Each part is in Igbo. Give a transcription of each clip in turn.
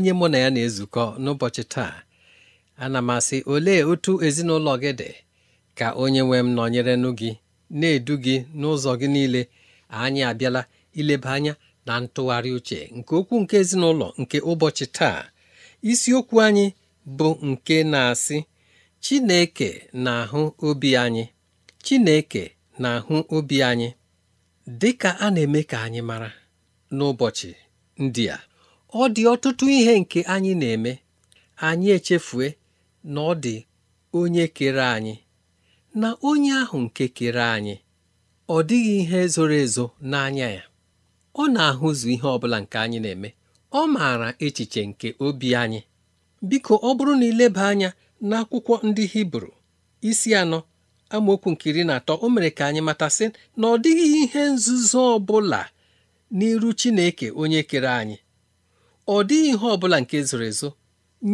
onye mụ na ya na-ezukọ n'ụbọchị taa ana m asị olee otu ezinụlọ gị dị ka onye nwe m nọnyerenụ gị na-edu gị n'ụzọ gị niile anyị abịala ileba anya na ntụgharị uche nke okwu nke ezinụlọ nke ụbọchị taa isiokwu anyị bụ nke na-asị Chineke na-ahụ obi anyị Chineke na-ahụ obi anyị dị ka a na-eme ka anyị mara n'ụbọchị ndị a ọ dị ọtụtụ ihe nke anyị na-eme anyị echefue na ọ dị onye kere anyị na onye ahụ nke kere anyị ọ dịghị ihe zoro ezo n'anya ya ọ na-ahụzu ihe ọ bụla nke anyị na-eme ọ maara echiche nke obi anyị biko ọ bụrụ na ileba anya n'akwụkwọ ndị Hibru isi anọ amaokwu nke iri na atọ o mere ka anyị matasị na ọ dịghị ihe nzuzo ọ bụla n'iru Chineke onye kere anyị ọ dịghị ihe ọ bụla nke zoro ezo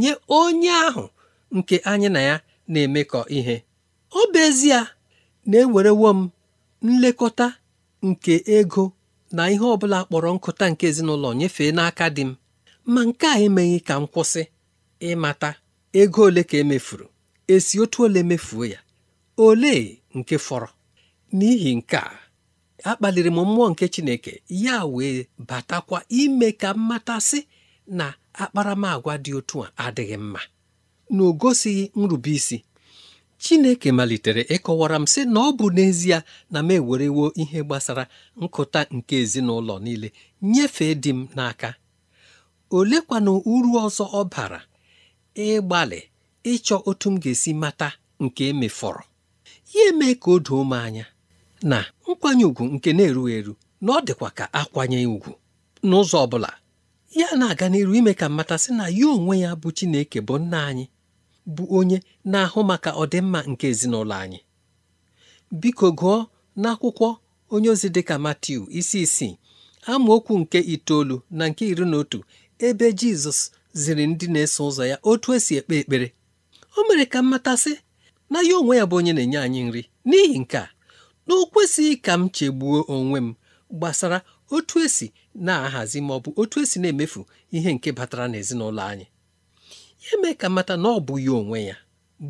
nye onye ahụ nke anyị na ya na-emekọ ihe ọ bụ ezie na-ewerewo m nlekọta nke ego na ihe ọ bụla kpọrọ nkụta nke ezinụlọ nyefee n'aka di m ma nke a emeghị ka m kwụsị ịmata ego ole ka emefuru esi otu ole mefuo ya ole nke fọrọ n'ihi nke a akpaliri m mmụọ nke Chineke ya wee batakwa ime ka m matasị na akparamàgwa dị otu a adịghị mma na o gosighị nrubeisi Chineke malitere ịkọwara m sị na ọ bụ n'ezie na m ewerewo ihe gbasara nkụta nke ezinụlọ niile nyefee di m n'aka Olekwa na uru ọzọ ọ bara ịgbalị ịchọ otu m ga-esi mata nke emefọrọ ya eme ka o doo m anya na nkwanye ùgwù nke na-erughị eru na ọ dịkwa ka akwanye ùgwù n'ụzọ ọ bụla ya na-aga n'iru ime ka mmatasị na ya onwe ya bụ Chineke bụ nna anyị bụ onye na-ahụ maka ọdịmma nke ezinụlọ anyị biko gụọ n'akwụkwọ onye ozi dịka Matiu isi isii amaokwu nke itoolu na nke iri na otu ebe Jizọs ziri ndị na-eso ụzọ ya otu esi ekpe ekpere o mere ka mmatasị na ya onwe ya bụ onye na-enye anyị nri n'ihi nke a na o kwesịghị ka m chegbuo onwe m gbasara otu esi na-ahazi ma ọ bụ otu esi na-emefu ihe nke batara n'ezinụlọ anyị ya mee ka mata na ọ bụ ya onwe ya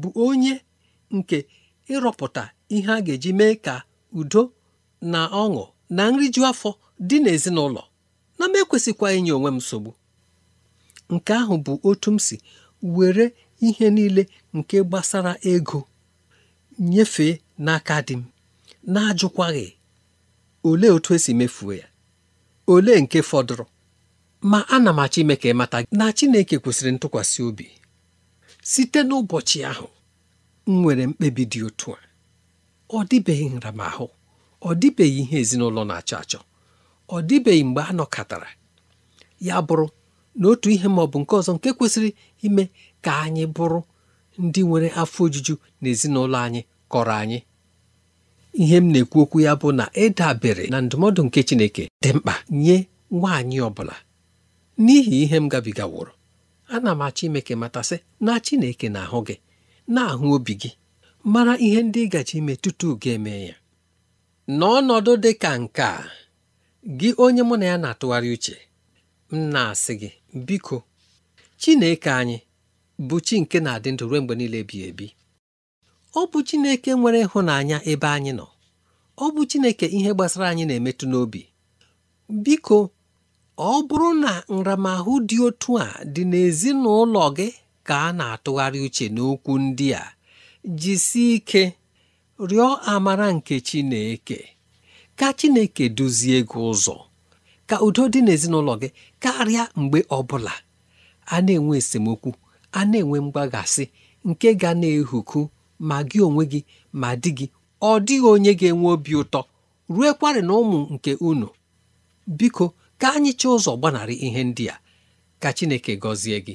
bụ onye nke ịrọpụta ihe a ga-eji mee ka udo na ọṅụ na nriju afọ dị n'ezinụlọ na m ekwesịkwa inye onwe m nsogbu nke ahụ bụ otu m si were ihe niile nke gbasara ego nyefee n'aka di m na-ajụkwaghị olee otu esi mefuo ya ole nke fọdụrụ ma ana m achọ ime ka ị mata na Chineke kwesịrị ntụkwasị obi site n'ụbọchị ahụ m nwere mkpebi dị otu a ọ dịbeghị nramahụ ọ dịbeghị ihe ezinụlọ na-achọ achọ ọ dịbeghị mgbe a nọkọtara ya bụrụ na otu ihe ma ọ bụ nke ọzọ nke kwesịrị ime ka anyị bụrụ ndị nwere afọ ojuju na ezinụlọ anyị kọrọ anyị ihe m na-ekwu okwu ya bụ na ịdabere na ndụmọdụ nke Chineke dị mkpa nye nwaanyị ọ bụla n'ihi ihe m gabigaworo ana m achọ ime ka matasị na Chineke na-ahụ gị na-ahụ obi gị mara ihe ndị ị gaji ime tutu ga eme ya n'ọnọdụ dị ka nke a gị onye mụ na ya na-atụgharị uche m na-asị gị biko Chineke anyị bụ chi nke na-adị ndụ ruo mgbe niile ebighị ebi ọ bụ Chineke nwere ịhụnanya ebe anyị nọ ọ bụ Chineke ihe gbasara anyị na-emetụ n'obi biko ọ bụrụ na nramahụ dị otu a dị n'ezinụlọ gị ka a na-atụgharị uche n'okwu ndị a jisie ike rịọ amara nke Chineke ka Chineke duzie gị ụzọ ka udo dị n'ezinụlọ gị karịa mgbe ọbụla a na-enwe esemokwu a na-enwe mgbaghasị nke ga na-ehuku ma gị onwe gị ma di gị ọ dịghị onye ga-enwe obi ụtọ ruekwarị na ụmụ nke unu biko ka anyị ụzọ gbanarị ihe ndị a ka Chineke gọzie gị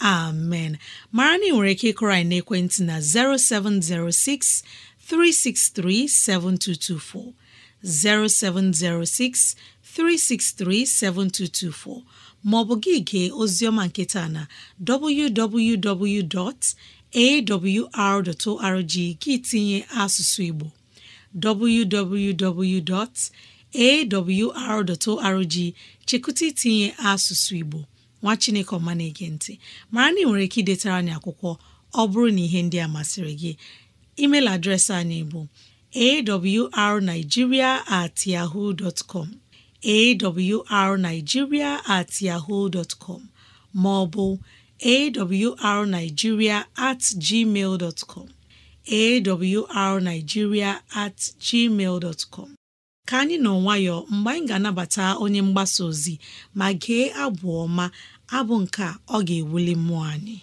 amen mara na ị nwere ike ịkụrọ anyị n'ekwentị na 0706 363 7224 0706 363 7224 ma ọ bụ gị gee oziọma nketa na www.awr.org gị tinye asụsụ Igbo www.awr.org chekụta tinye asụsụ Igbo nwa chineke ọma na-ege ntị mara na ị nwere ike idetara anyị akwụkwọ ọ bụrụ na ihe ndị a masịrị gị email adreesị anyị bụ awrnigeria at yahoo dot com awrnigeria at yahoo com ma ọ bụ awrnigeria at gmail dot com awrnigeria at gmail com ka anyị nọ nwayọọ mgbe anyị ga-anabata onye mgbasa ozi ma gee abụ ọma abụ nke a ọ ga-ewuli mmụọ anyị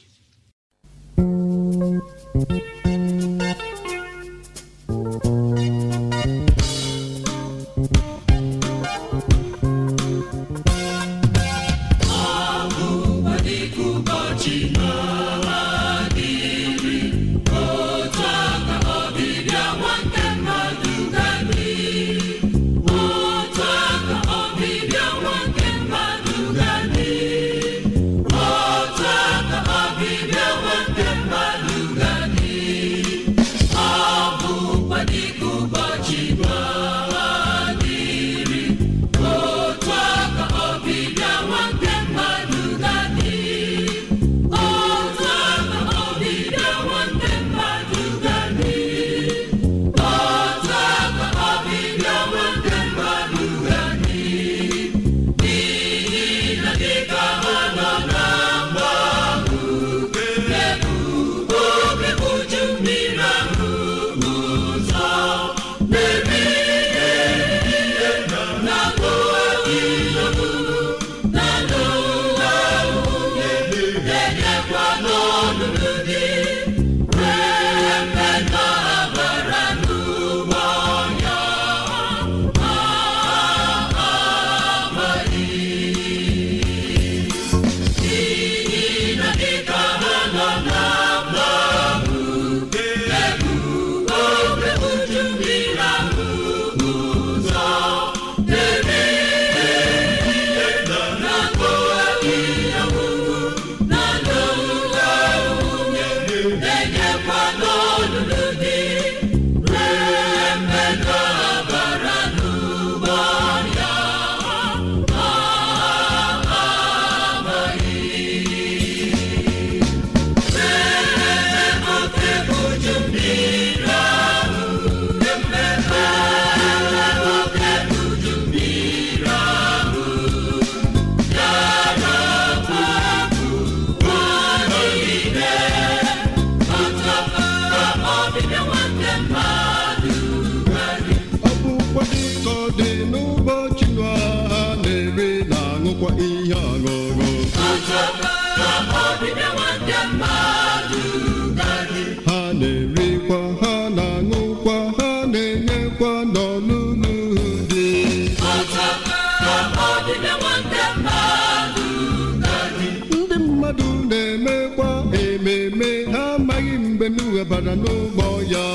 gara n'ụgbọ ya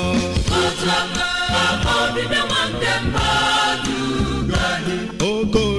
oke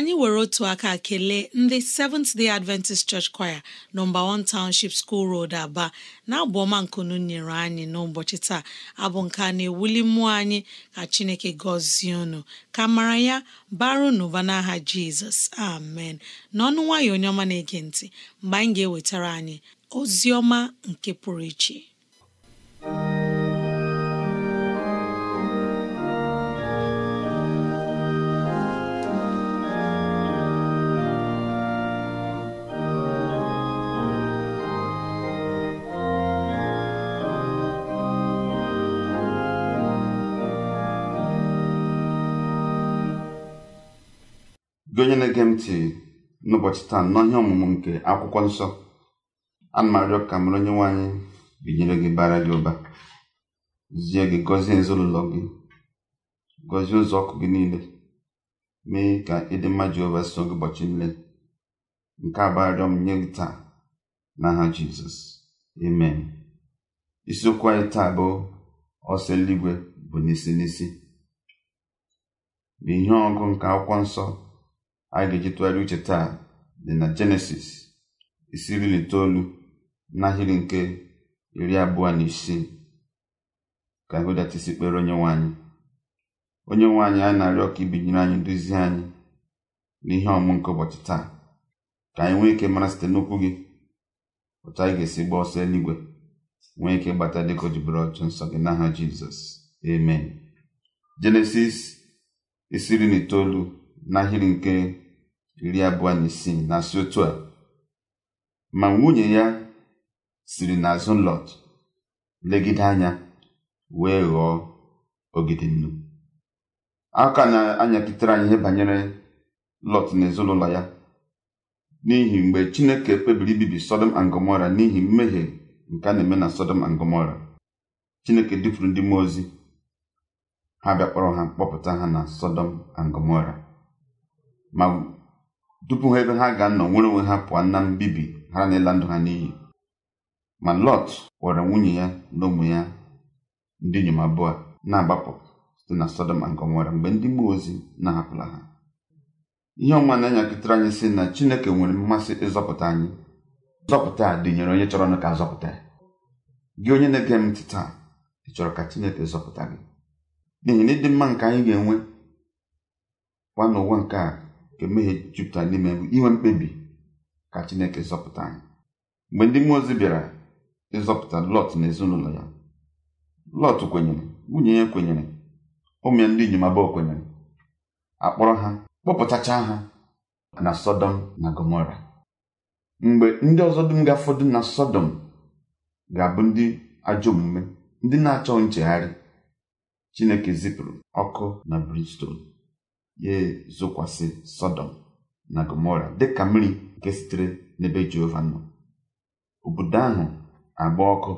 anyị were otu aka kelee ndị Seventh Day Adventist Church Choir nọmba 1 Township School Road Aba na abụọma nkunu nyere anyị n'ụbọchị taa abụ nke na-ewuli mmụọ anyị ka Chineke gọzie unu ka mara ya baru n'ụba n'aha Jizọs amen n'ọnụ nwayọ onye ọma na-ege ntị mgbe anyị ga-ewetara anyị ozi ọma nke pụrụ iche gị onye na-ege m ntị n'ụbọchị taa n'ọhịa ọmụmụ nke akwụkwọ nsọ ana m ka mara onye nwaanyị binyere gị bara gị ụba zie gị gọzie ezinụlọ gị gọzie ụzọ ọkụ gị niile mee ka ịdị mma Jehova so gị ụbọchị nle nke abụ m nye gị taa n'aha Jizọs amen isiokwu anyị taa bụ ọsọ eluigwe bụ n'isi n'isi bụ ihe ọgụ nke akwụkwọ nsọ anyị ga-eji tụgharị uche taa dị na jenesis isiri iri na itoolu n'ahịrị nke iri abụọ na isii ka anyị isi kpere onye nwe anyị onye nwe anyị anyị na-arịọ ka ibinyere anyị nduzi anyị n'ihe ọmụ nke ụbọchị taa ka anyị nwee ike mara site n'okwu gị otu anyị ga-esi gbaa ọsọ eluigwe nwee ike gbata dịka o jibere ọchụ nsọ gị n'aha jizọs amen jenesis isiri na itoolu n'ahịrị nke iri abụọ na isii na-asị otu a ma nwunye ya siri n'azụ Lọt legide anya wee ghọọ ogidi nnu aka na-anyakịtere anyị ihe banyere Lọt na ezinụlọ ya n'ihi mgbe Chineke kpebiri ibibi Sodom and Gomora n'ihi mmehie nke a na-eme na Sodom and Gomora Chineke dufuru ndị mmụọ ozi ha bịakpọrọ ha kpọpụta ha na Sodom and Gomora ma dupu ha ebe ha ga-anọ nwere onwe ha pụọ na mbibi ha na ndụ ha n'iyi ma lọt were nwunye ya na ụmụ ya ndị inyom abụọ na-agbapụ site na sọdọm nke nwere mgbe ndị mmụọ ozi na-ahapụla ha ihe ọma na-enyakịtara anyị si na chineke nwere mmasị ịzọpụta anyị nzọpụta a dịnyere onye chọrọ ka azọpụta ya gị onye na-ege m taa ị chọrọ ka chineke zọpụta gị n'ihi na ịdị mma nke anyị ga-enwe kwa n'ụwa nke a nke mmehie jupụtara n'ime bụ inwe mkpebi ka chineke zọpụta anyị mgbe ndị mmụọ ozi bịara ịzọpụta lọt na ezinụlọ ya lọt kwenyere nwunye ya kwenyere ụmụ ya ndị inyom abụọ kwenyere akpọrọ ha kpọpụtachaa ha na sọdọm na gomora mgbe ndị ọzọ dum ga-afọdụ na sọdọm ga-abụ ndị ajọ omume ndị na-achọ nchegharị chineke zipụrụ ọkụ na bristol ya ezokwasị Sodom na gomora dịka mmiri nke sitere n'ebe jehova nọ obodo ahụ agba ọkụ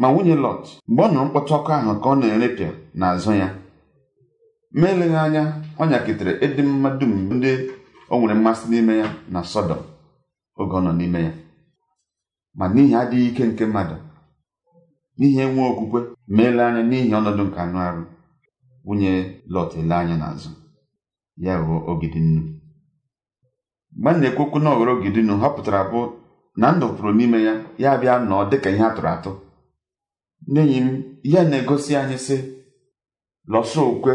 ma nwunye lọt mgbe ọ nụrụ mkpọtụ ọkụ ahụ ka ọ na-erepịa n'azụ ya ma eleghị anya ọ nyakịtara ịdị mma dum ndị o nwere mmasị n'ime ya na Sodom. oge ọ nọ n'ime ya ma n'ihi adịghị ike nke mmadụ n'ihi enwe okwukwe ma ele anya n'ihi ọnọdụ nke anụ arụ nwunye lọt ele anya n'azụ ya bụ Ogidinnu mgbe m na-ekwu okwu na ọghọrọ Ogidinnu bụ na ndụ pụrụ n'ime ya ya bịa nọọ dịka ihe atụrụ atụ n'enyi m ya na-egosi anyị sị lọsọ okwe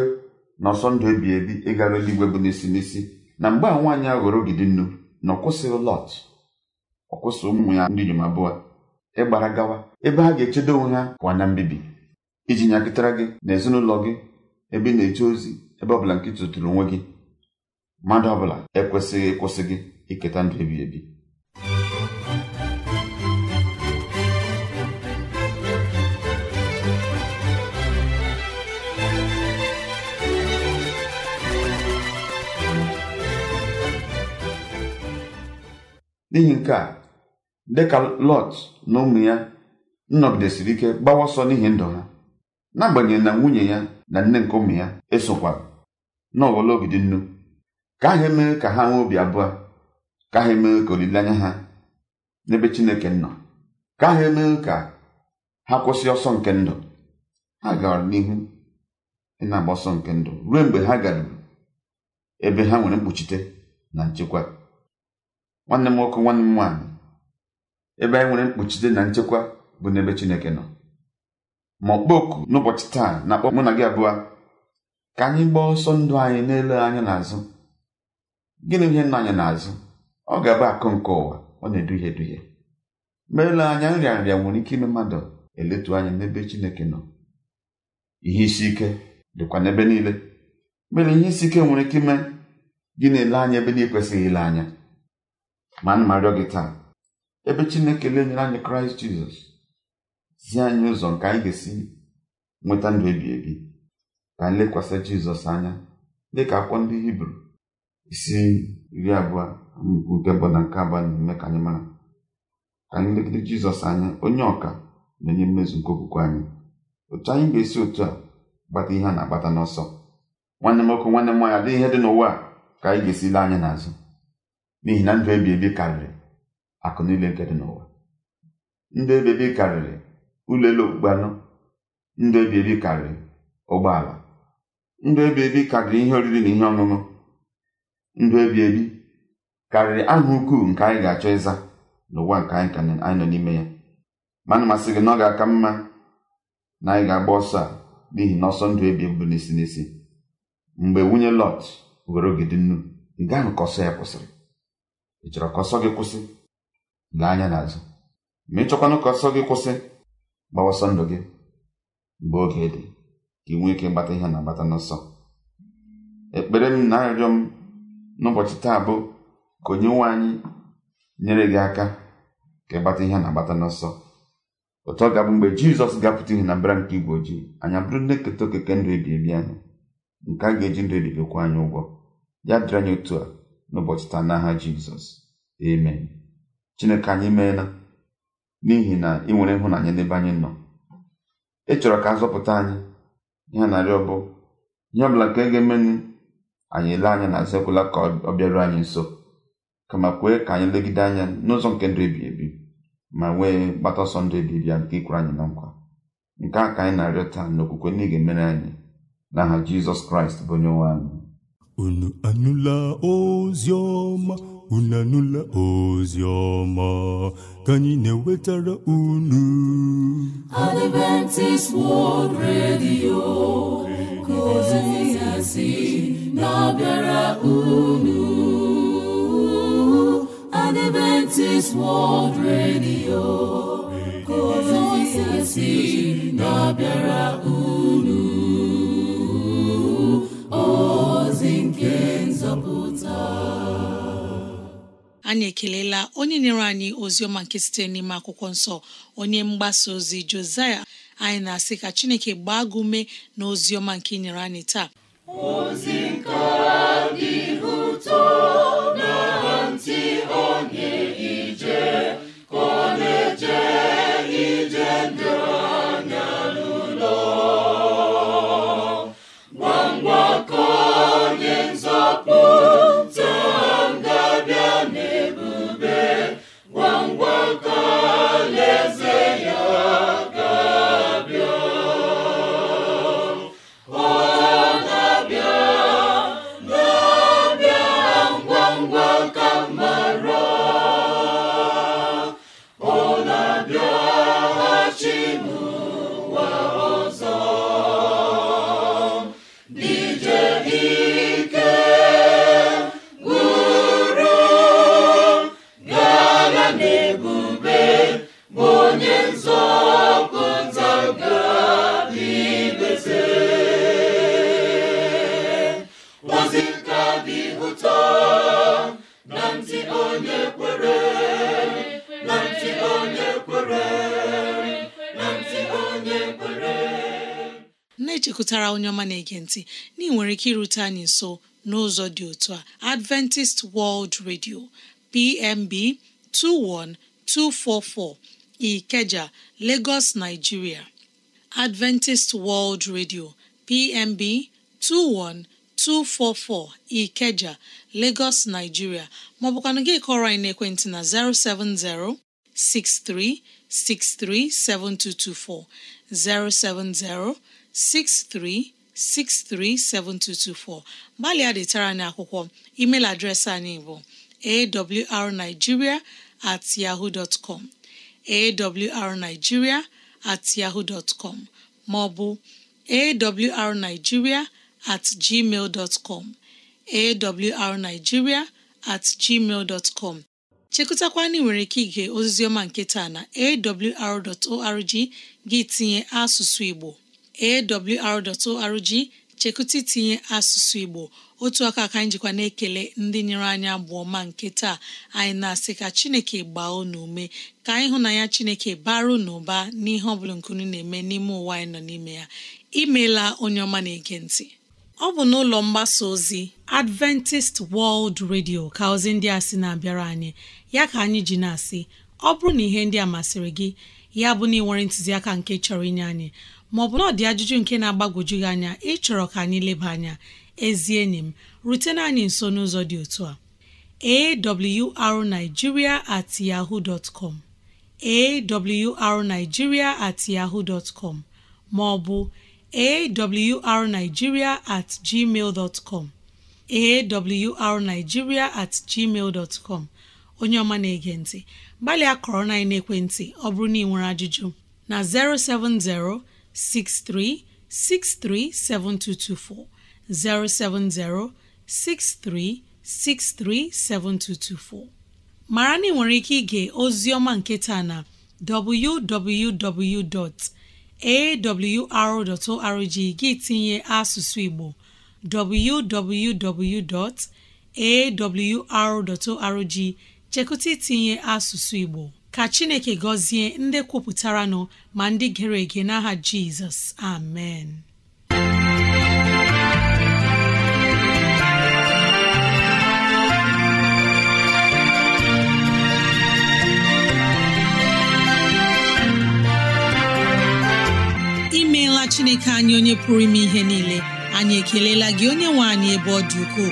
na ọsọ ndụ ebi ebi ịgara eluigwe bụ n'isi n'isi na mgbe a nwaanyị aghọrọ Ogidinnu na ọ kwụsịghị Lọt ọ ụmụ ya ndị inyom abụọ ịgbara gawa ebe ha ga-echedo onwe ha pụọ na mbibi iji nyakịtara gị na ezinụlọ gị ebe ị na-eje ozi ebe ọbụla nke tụtụrụ onwe gị mmadụ ọbụla ekwesịghị ịkwụsị iketa ndụ ebi ebi n'ihi nke a dịka lọt na ụmụ ya nnọgidesiri ike gbawa ọsọ n'ihi ndụ ha n'agbanyeghị na nwunye ya na nne nke ụmụ ya esokwara n'ọghọla ogidi nnu ka ha emee ka ha nwee obi abụọ ka ha emee ka olileanya ha n'ebe chineke nọ ka ha emee ka ha kwụsị ọsọ nke ndụ ha gara n'ihu ịna-agba ọsọ nke ndụ ruo mgbe ha garuru ebe ha nwere mkpuchite na nchekwa nwanne m nwoke nwanne m nwaanyị ebe anyị nwere mkpuchite na nchekwa bụ n'ebe chineke nọ ma ọkpọku n'ụbọchị taa na-akpọ mụ na gị abụọ ka anyị gbaa ọsọ ndụ anyị n'ele anya n'azụ gịnị ihe nna anyị n'azụ ọ ga-abụ akụ nke ụwa ọ na-eduhie eduhie mgbe anya nrịa nrịa nwere ike ime mmadụ eletu anya n'ebe Chineke nọ ihe isi ike dịkwa n'ebe niile mere ihe isi ike nwere ike ime gị na-ele anya ebe na-ekwesịghị ile anya ma nna rịọ gị taa ebe Chineke lenyere anyị Kraịst Jizọs zi anyị ụzọ nke anyị ga-esi nweta ndụ ebi ebi ka anyị lekwasị Jizọs anya dị ka akwụkwọ ndị Hibru isi iri abụọ amaokwu nke mbụ na nke abụọ na-eme ka anyị mara ka anyị legide jizọs anya onye ọka na enye mmezu nke okwukwe anyị otu anyị ga-esi otu a gbata ihe a na-agbata n'ọsọ nwanne m ọkụ nwanne m nwaanyị adịghị ihe dị n'ụwa ka anyị ga-esi lee anya n'azụ n'ihi na ndụ ebi ebi karịrị akụ niile nke dị n'ụwa ndụ ebi ebi karịrị ụlọ elu okpukpe anụ ndụ ebi ebi karịrị ụgbọala ndụ ebi ebi karịrị ihe oriri na ihe ọṅụṅụ ndụ ebi ebi karịrị aha ukwuu nke anyị ga-achọ ịza n'ụwa nke anyị ka anyị nọ n'ime ya ma na masị gị na ọ ga-aka mma na anyị ga-agba ọsọ a n'ihi na ọsọ ndụ ebi bụ n'isi n'isi mgbe nwunye lọt were ogidi nnu ị gaa ka ọsọ ya kwụsịrị ị chọrọ ka ọsọ gị kwụsị lee anya n'azụ ma ị chọkwanụ ka ọsọ gị kwụsị gbawa ọsọ ndụ gị mgbe oge dị ka ị nwee ike ịgbata ihe na-agbata n'ọsọ ekpere m na arịrịọ m n'ụbọchị taa bụ ka onye nwe anyị nyere gị aka ka ịgbata ihe a na-agbata n'ọsọ ụtọ ọ ga-abụ mgbe jizọs ga-apụta ihe na mbara nke igwe ojii anyị abụrụ ndị keta okeke ndụ ebi anyị nke a ga-eji ndụ ebibiokwa anyị ụgwọ ya dịrị anyị otu a n'ụbọchị taa n'aha jizọs amen chineke anyị meela n'ihi na ị nwere ịhụnanya n'ebe anyị nọ ị chọrọ ka a zọpụta anyị ihe narị bụ ihe ọbụla nke ga-emenụ anyị ele anya na azakwela ka ọ bịaruo anyị nso kama kwee ka anyị legide anya n'ụzọ nke ndụ ebi ebi ma nwee gbata ọsọ ndụ ebi ebi ya nke ikwere anyị na nkwa nke a ka anyị na-arịọ taa n'okwukwe na ị ga-emere anyị aha jizọs kraịst bụ onye nwe anyị unu anụla ozi ọma unu anụla ozi ọma ka anyị na-ewetara unu Adventist World Radio ka ngọzi na-abịara unu Adventist World Radio si na-abịara unu ozi nke nzọpụta anyị ekelela onye nyere anyị ozi ọma nke site n'ime akwụkwọ nsọ onye mgbasa ozi Josiah anyị na-asị ka Chineke gbaa gị na ozi ọma nke nyere anyị taa ozi nke dị ụtọ na-ege ntị na ị nwere ike irute anyị nso n'ụzọ dị otu a Adventist World Radio PMB 21244 Ikeja Lagos Nigeria Adventist World Radio PMB 21244 Ikeja Lagos Nigeria maọbụkwanụ gị kọrọ anyị n'ekwentị na 070 63637224 070 63 637224 gbalịa detara anyị akwụkwọ email adreesị anyị bụ awrnigeria at yahoo com awrnigeria at yahoo maọbụ awrnigeria at gmail dot com awrnigeria at gmail dot com nwere ike ige ọma nke taa na awr.org gị tinye asụsụ Igbo awr.org chekụta itinye asụsụ Igbo otu aka ka anyị jikwa na-ekele ndị nyere anyị abụọ ma nke taa anyị na-asị ka Chineke gbaa unu ume ka anyị hụ na ya Chineke baru ụba n'ihe ọ bụla nkunu na-eme n'ime ụwa anyị nọ n'ime ya imeela onye ọma na-ege ntị ọ bụ n'ụlọ mgbasa ozi Adventist World Radio ka ozi ndị a sị na-abịara anyị ya ka anyị ji na-asị ọ bụrụ na ihe ndị a masịrị gị ya bụ na ị nwere ntụziaka nke chọrọ inye anyị maọ bụ ọ dị ajụjụ nke na-agbagwoju gị anya ịchọrọ ka anyị leba anya ezi enyi m rutena anyị nso n'ụzọ dị otu a awrnigeria at yahoo dot com awrnigeria at yahoo dot com maọbụ awrnigeria at gmail dot com awrnigeria at com onye ọma na-ege ntị gbalịa kọrọ na ekwentị ọ bụrụ na ị nwere ajụjụ na 070 63637224 mara na ị nwere ike ige ozioma ọma nke taa na www.awr.org gị tinye asụsụ Igbo www.awr.org chekụta itinye asụsụ Igbo ka chineke gọzie ndị kwupụtara nọ ma ndị gere ege n'aha jizọs amen imeela chineke anyị onye pụrụ ime ihe niile anyị ekelela gị onye nwe anyị ebe ọ dị ukwuu.